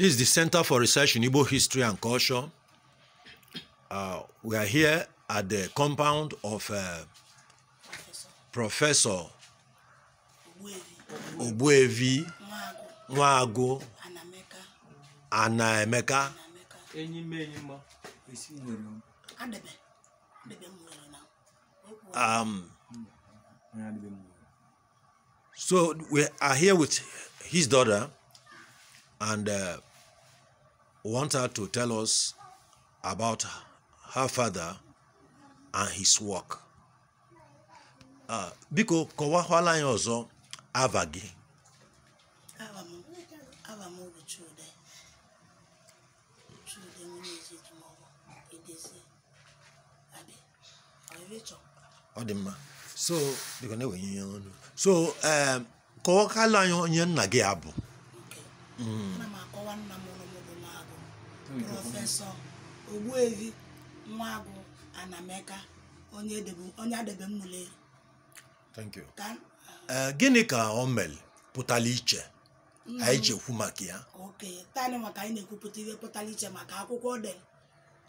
This is the Center for Research in Igbo History and Culture. Uh, we are here at the compound of uh, Professor Obuevi Nwago Anaemeka. Um, so we are here with his daughter and uh, want her to tell us about her father and his work. Ah, biko kọwakwala anyị ọzọ ava gị. ọ dị mma so biko na-ewenye ihe ọnụ so kọwakwala anyị onye nna gị abụ. Mm. ana m akọwa nna m prọfesọ Ogbuefi Nwagwu Anameka onye adebe mmụle thank you eh, gịnị ka o mere pụtara iche mm. anyị ji ekwu maka ya oke tani maka anyị na-ekwupụta ihe pụtara iche maka akwụkwọ dị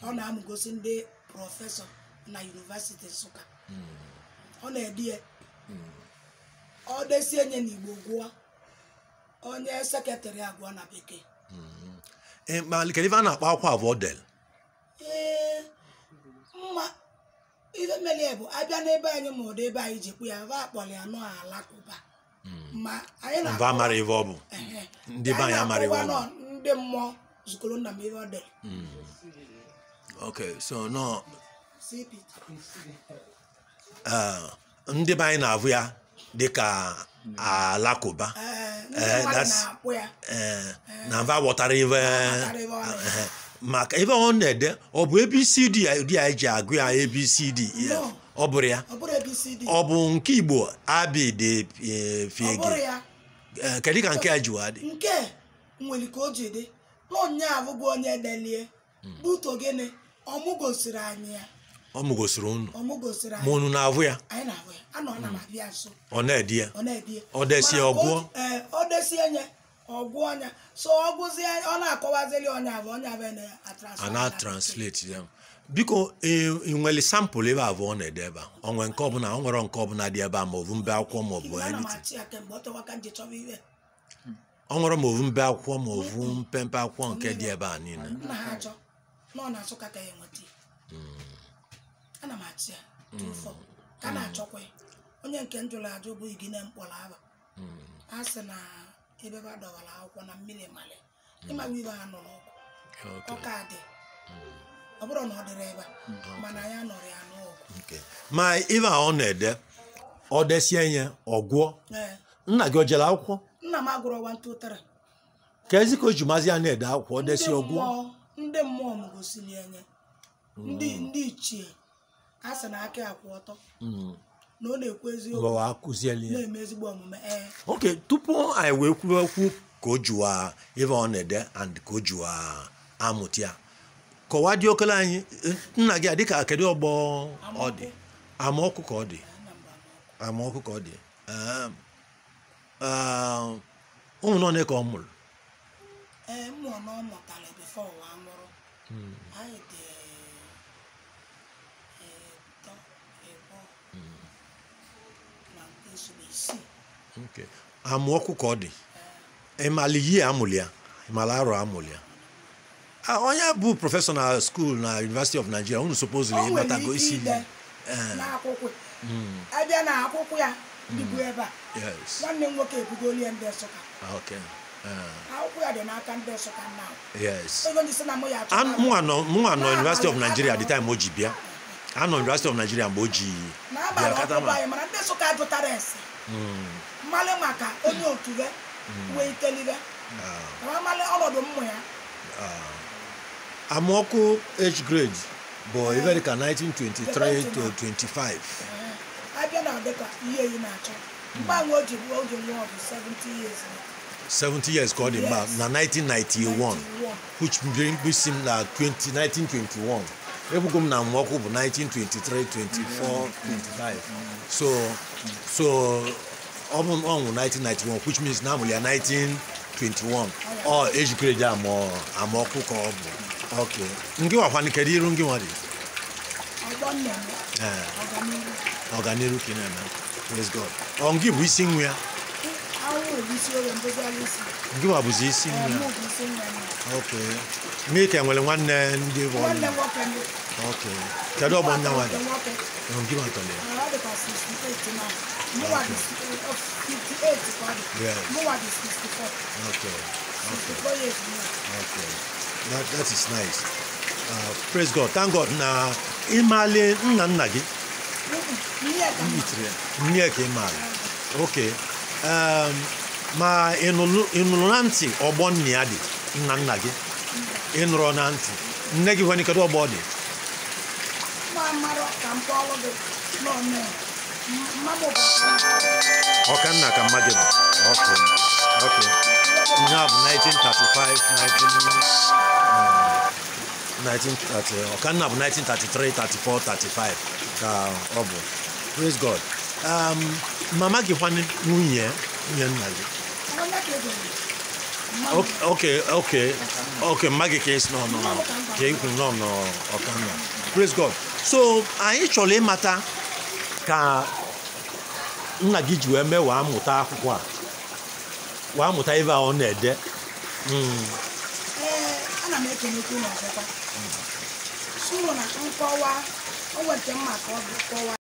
ọ na-amụgosi ndị prọfesọ na yunivesiti Nsụka mm. ọ na-ede ya mm. ọ desie nye n'Igbo gụọ onye seketịrị agụọ na bekee mm-hmm. Eh, kedu eh, ife e a na-akpọ akwa vodel ife mere ya bụ abịa n'ebe anyị ma ọdụ ebe anyị jikwu ya va akpọrọ ya nọọ alakụba ma anyị na-amara ife ọ bụ ndị be anyị amara ife ọ ndị mmụọ zukọrọ nna m ife ọ dere so nọ ndị be anyị na abụ ya dịka alakụba Eh, eh, eh. na mva ghọtara ive maka ebe ọ na-ede ọ bụ abcd ya eji agụ ya abcd ọ bụrụ ya ọ bụ nke igbo abịdị fiege kedu ka nke a jiwa dị nke nwere ka o ji dị na onye abụghị onye delie hmm. buto gịnị ọmụgosiri anyị ya ọ mụgosiri unu ma unu na-ahụ ya hmm. ọ na-edi ya ọ desi ya ọgwụọ ọgwụ ọnya so ọ gụzie ọ na-akọwazili ọnya abụ ọnya abụ na translate ya biko e, ị nwere sampụl ebe abụọ ọ na-ede ebe a onwe nke ọbụla ọ nwere nke ọbụla dị ebe a ma ọbụ mbe akwụkwọ ma ọbụ ọ nwere ma ọbụ mbe akwụkwọ ma ọbụ mpempe akwụkwọ nke dị ebe a niile ana m achị ya tụfọ ka a na-achọkwa onye nke njụrụ ajụ bụghị gị na mkpọrọ aba a sị na ebe a dọwara akwụkwọ na mmiri mali ịmawa ibe ha nụrụ ọkụ ọka dị hmm. ọ bụrụ na ọ dịrị ebe hmm. mana ya nụrụ ya n'ọgụ ma ibe a ọ na-ede ọ desie ihe ọgwụọ eh. nna gị o jere akwụkwọ nna m agụrụ ọwa ntụ ụtara ka ezi ka o ji mazi ya na-ede akwụkwọ ọ desie ọgwụọ ndị mmụọ m gosiri enye hmm. ndị ichie ha sị na aka akwụ ọtọ hmm. na ọ na-ekwu eziokwu na-eme ezigbo omume Ok, tupu anyị wee kwuo okwu ka o juwa ife ọ na-ede and ka o juwa amụta ya kọwaa dị okele anyị nna gị a dịka kedu ọgbọ ọ dị amaọkụ ka ọ dị amaọkụ ka ọ dị ehm, ehm, ụmụnọ na ka ọ mụrụ ee mmụọ na ọ mụtara bifo ụwa nwụrụ hmm. anyị dị amaokwu ka ọ dị ịmala ihe amụlị ịmala arọ amụlị ah, onye bụ prọfesọ na skuul na University of Nigeria unu supposedly ịmatago isi eh. abịa hmm. na hmm. ah, eh. akwụkwọ ya dị o ji bịa anọ nọ University of Nigeria mgbe o ji hmm. mmalị maka onye otu ya hmm. wee itelire ah. mmalị ọnọdụ mmụ ya ah. amaọkụ H grade bụ eh. ibe eh. ka 1923 25 abịa na dịka ihe yi na-achọ hmm. mgbanwe o ji bụ oge nwa bụ 70 years 70 years ka ọ dị mma na 1991 which brings him na 1921 ekwugo m na mwọkụ bụ 1923 24 25 so so ọ bụ ọnwụ 1991 which means na ya 1921 ọ ejikere ji amaọkụ ka ọ bụ ok ngị wakwana kedu iru ngị nwa dị eh, ọganiru ka ị na-eme praise god ọ ngị bụ isi nwa ya Juma Abuzisi nna. Okay. Mmiri ka nwere nwanne ndị bụ ọnụ. Okay. Kedu ọgbọ nna nwaanyị? Ọrụ gị maka ya. Okay. Okay. Okay. That, that is nice. Uh, praise God. Thank God na ịmaale nna nna gị. Nne ka ịmaale. Okay. Um, ma ị nụrụ na ntị ọgbọ nna ya dị nna nna gị ị nụrụ na ntị nne gị nwere kedu ọgbọ ọ dị ọkanna ka mma gị bụ ihe a bụ 1935 1930 ọkanna bụ 1933 34 35 ka ọ bụ praise god um, mama gị nwunye nwunye nna gị Okay, okay, okay, magikes no no ka ikwu no no ọkanna praise God so anyị chọrọ ịmata ka nna gị ji wee mee wee mụta akwụkwọ a wee amụta ebe a ọ na-ede hmm. eh, ana m ekenekwu n'ọzọkwa sụrụ na nkọwa o nke mma ka ọ bụ kọwa